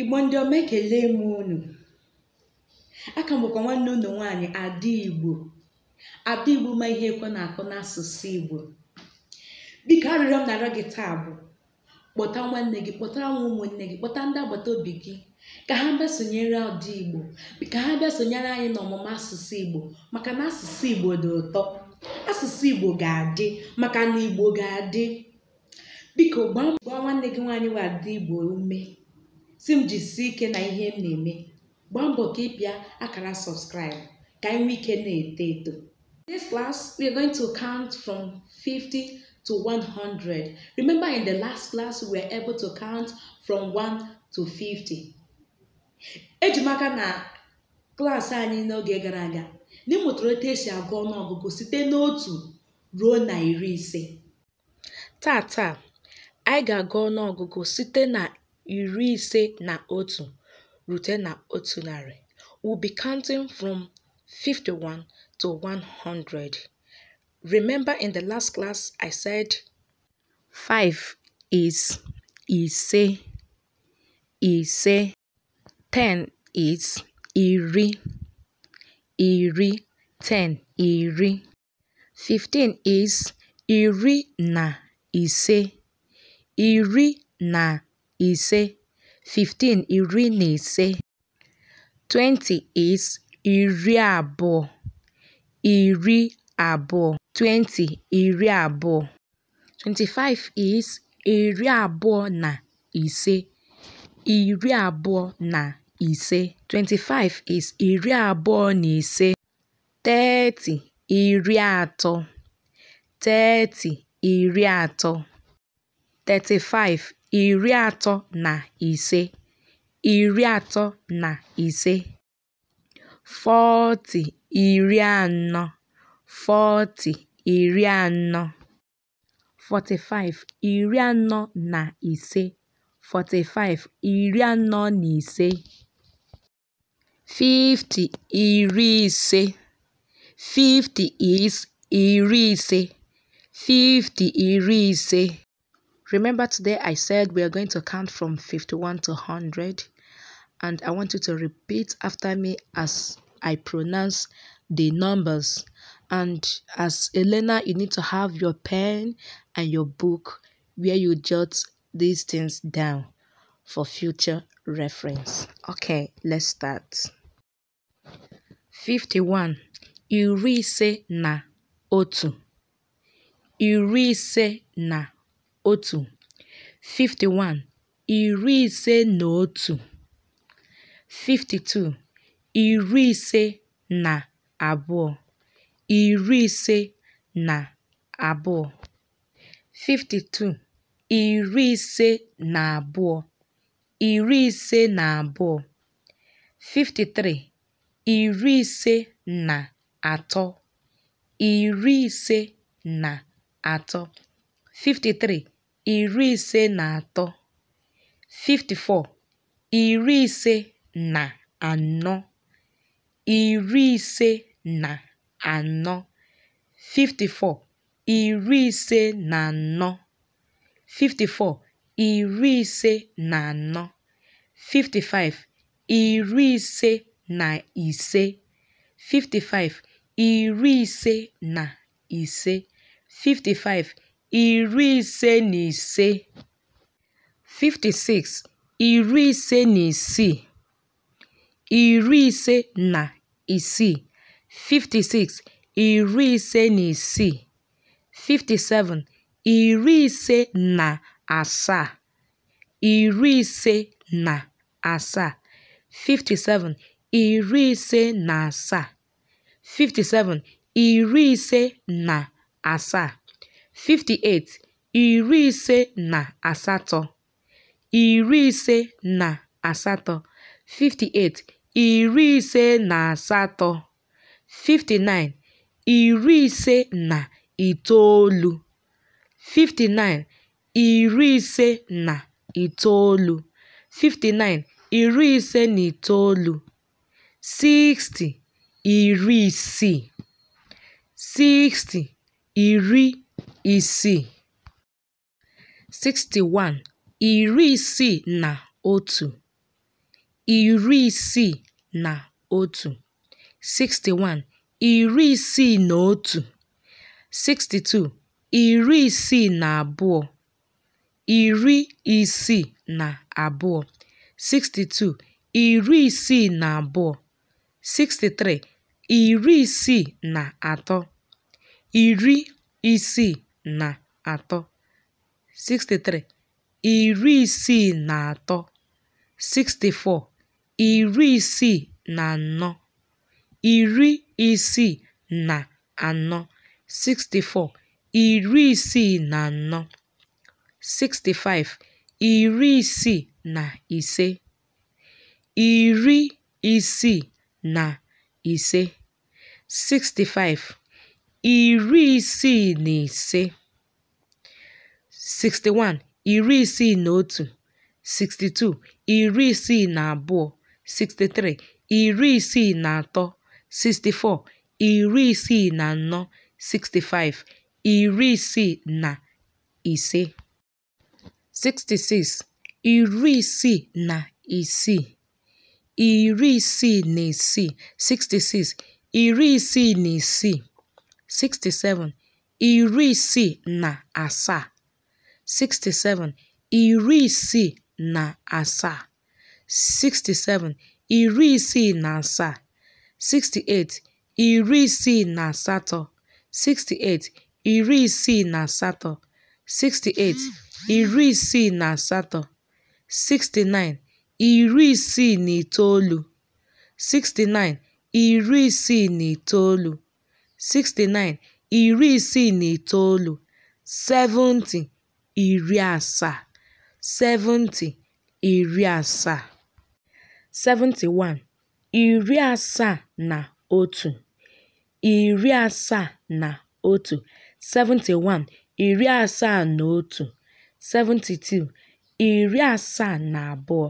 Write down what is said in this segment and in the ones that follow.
igbo ndị ọma ekele m unu aka mbụkwa nwanne unu nwaanyị ada igbo ada igbo ma ihe ekwe na-akụ n'asụsụ igbo biko arịrịọ m na-arịọ gị taa bụ kpọta nwanne gị kpọtara nwa ụmụnne gị kpọta ndị agbata obi gị ka ha bịa sonyere ọdị igbo ka ha bịa sonyere anyị n'ọmụmụ asụsụ igbo maka na asụsụ igbo dị ụtọ asụsụ igbo ga-adị maka na igbo ga-adị biko gbaa gbaa nwanne gị nwaanyị wee adị igbo ume si m jisie ike na ihe m na-eme gbaa mbọ ka ị pịa akara subscribe ka anyị nwee ike na-eto eto this class we are going to count from 50 to 100 remember in the last class we were able to count from 1 to 50 eji na klas anyị n'oge gara aga na ịmụtara otu esi agụ ọnụọgụgụ site n'otu ruo na iri ise taa anyị ga-agụ ọnụọgụgụ site na iri ise na otu rute na otu narị. We'll be counting from 51 to 100. Remember in the last class I said 5 is ise, ise. 10 is iri, iri. 10 iri. 15 is iri na ise, iri na ise fifteen iri na ise twenty is iri abụọ iri abụọ twenty iri abụọ twenty five is iri abụọ na ise iri abụọ na ise twenty is iri abụọ na ise thirty iri atọ thirty iri atọ thirty iri atọ na ise iri atọ na ise fọtị iri anọ fọtị iri anọ forty-five iri anọ na ise forty-five iri anọ na ise fifty iri ise fifty is iri ise fifty iri ise Remember today I said we are going to count from 51 to 100 and I want you to repeat after me as I pronounce the numbers. And as Elena, you need to have your pen and your book where you jot these things down for future reference. Okay, let's start. 51. Iri na otu. Iri na otu (51) iri ise na otu (52) iri ise na abụọ (iri ise na abụọ) (52) iri ise na abụọ (iri ise na abụọ) (53) iri ise na atọ (iri ise na atọ) (53) iri ise na atọ (54), iri ise na anọ (iri ise na anọ), 54, iri ise na anọ (54), iri ise na anọ (55), iri ise na ise (55), iri ise na ise (55 iri ise na ise (56), iri ise na isii (iri ise na isii), (56), iri ise na isii (57), iri ise na asaa (iri ise na asaa), (57), iri ise na asaa (57), iri ise na asaa 58, iri ise na asatọ, iri ise na iri ise na asatọ, 59, iri ise na itoolu, 59, iri ise na itoolu, 59, iri ise na itoolu, 60, iri isii, 60, iri isii (61) iri isii na otu iri isii na otu (61) iri isii na otu (62) iri isii na abụọ iri isii na abụọ (62) iri isii na abụọ (63) iri isii na atọ iri isii na atọ (63), iri isii na atọ (64), iri isii na anọ, iri isii na anọ (64), iri isii na anọ (65), iri isii na ise, iri isii na ise (65) iri isii na ise 61 iri isii na otu 62 iri isii na abụọ 63 iri isii na atọ 64 iri isii na anọ 65 iri isii na ise 66 iri isii na isii iri isii na isii 66 iri isii na isii 67 iri isii na asaa 67 iri isii na asaa 67 iri isii na asaa 68 iri isii na asatọ 68 iri isii na asatọ 68 iri isii na asatọ 69 iri isii na itoolu 69 iri isii na itoolu 69 iri isii na itoolu 70 iri asaa 70 iri asaa 71 iri asaa na otu iri asaa na otu 71 iri asaa na otu 72 iri asaa na abụọ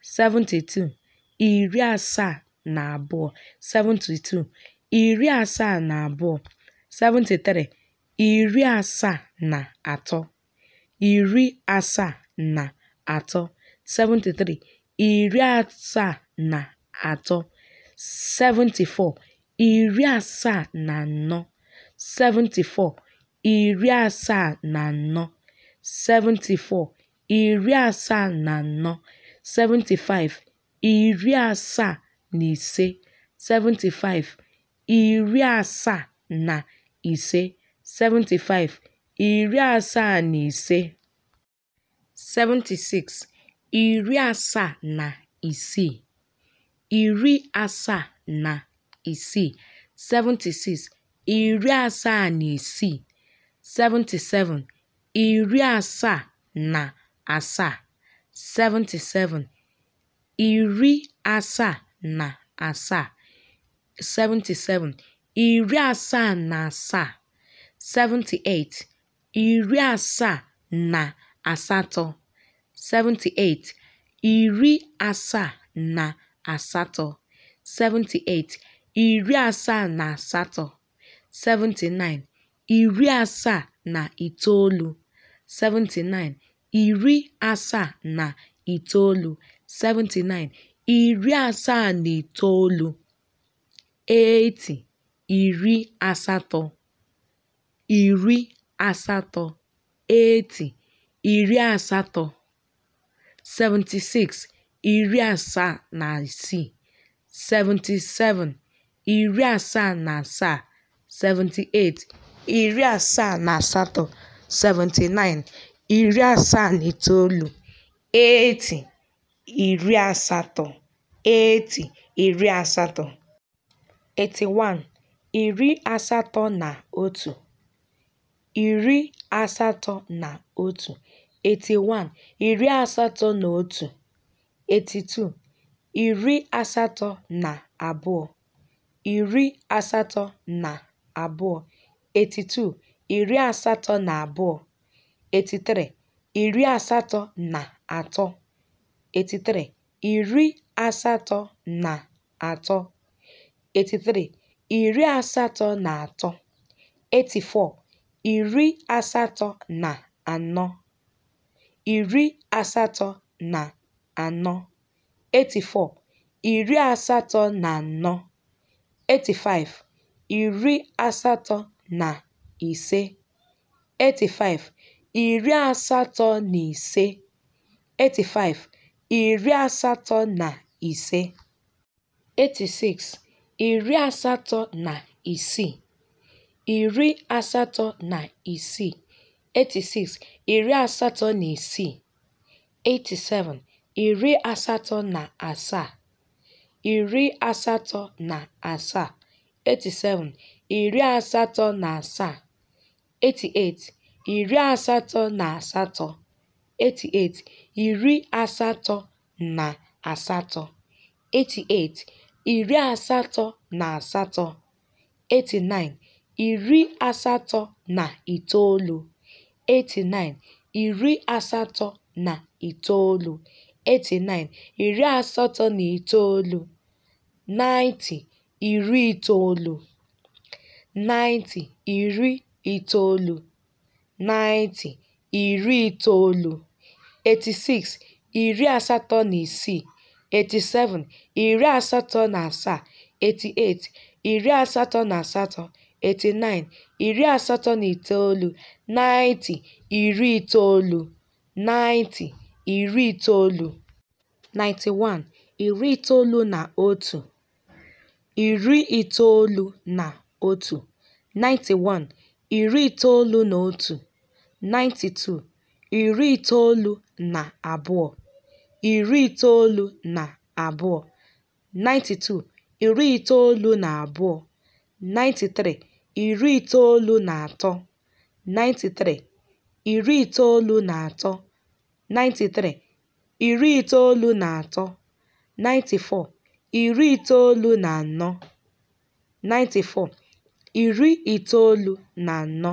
72 iri asaa na abụọ 72 iri asaa na abụọ (73), iri asaa na atọ (73), iri asaa na atọ (74), iri asaa na anọ (74), iri asaa na anọ (74), iri asaa na anọ (75), iri asaa na ise (75), iri asaa na ise iri asaa na ise iri asaa na isii (iri asaa na isii) iri asaa na isii iri asaa na asaa iri asaa na asaa 77 iri asaa na asaa 78 iri asaa na asatọ 78 iri asaa na asatọ 78 iri asaa na asatọ 79 iri asaa na itoolu 79 iri asaa na itoolu 79 iri asaa na itoolu iri asatọ 80 iri asatọ 76iri asaa na isii 77iri asaa na asaa 78iri asaa na asatọ 79iri asaa na itoolu 80 iri asatọ 80 iri asatọ 81 iri asatọ na otu (iri asatọ na otu) 81 iri asatọ na otu (81) 82 iri asatọ na abụọ (iri asatọ na abụọ) 82 iri asatọ na abụọ 83 iri asatọ na atọ 83 iri asatọ na atọ 83 iri asatọ na atọ 84 iri asatọ na anọ 84 iri asatọ na anọ 85 iri asatọ na ise 85 iri asatọ na ise 85 iri asatọ na ise 86 iri asatọ na isii iri asatọ na isii (86) iri asatọ na isii (87) iri asatọ na asaa iri asatọ na asaa (87) iri asatọ na asaa (88) iri asatọ na asatọ (88) iri asatọ na asatọ (88) iri asatọ na asatọ (89), iri asatọ na itoolu (89), iri asatọ na itoolu (89), iri asatọ na itoolu (90), iri itoolu (90), iri itoolu (90), iri itoolu (86), iri asatọ na isii 87, iri asatọ na asaa, 88, iri asatọ na asatọ, 89, iri asatọ na itoolu, 90, iri itoolu, 90, iri itoolu, 91, iri itoolu na otu, iri itoolu na otu, 91, iri itoolu na otu, 92, iri itoolu na abụọ. iri itoolu na abụọ (92) iri itoolu na abụọ (93) iri itoolu na atọ (93) iri itoolu na atọ (93) iri itoolu na atọ (94) iri itoolu na anọ (94) iri itoolu na anọ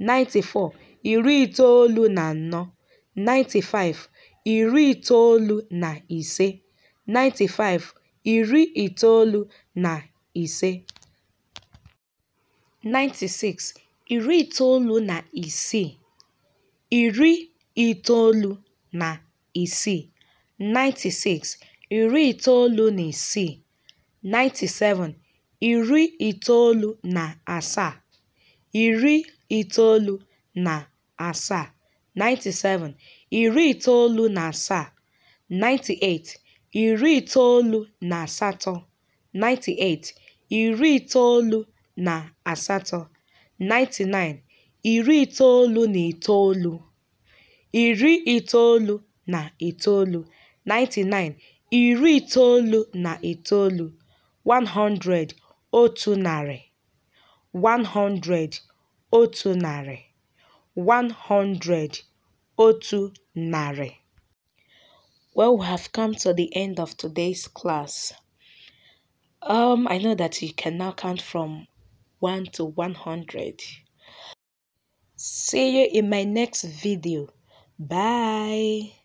(94) iri itoolu na anọ (95) iri itoolu na ise (95, iri itoolu na ise) 96 iri itoolu na isii (iri itoolu na isii) 96 iri itoolu na isii 97 iri itoolu na asaa (iri itoolu na asaa) 97 iri itoolu na asaa (98), iri itoolu na asatọ (98), iri itoolu na asatọ (99), iri itoolu na itoolu, iri itoolu na itoolu (99), iri itoolu na itoolu (100), otu narị (100), otu narị (100) otu narị. Well, we have come to the end of today's class. Um, I know that you can now count from 1 to 100. See you in my next video. Bye.